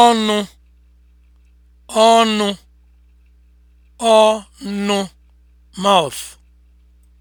ọnụ ọnụ ọnụ mouth